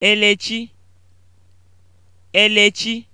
Elechi Elechi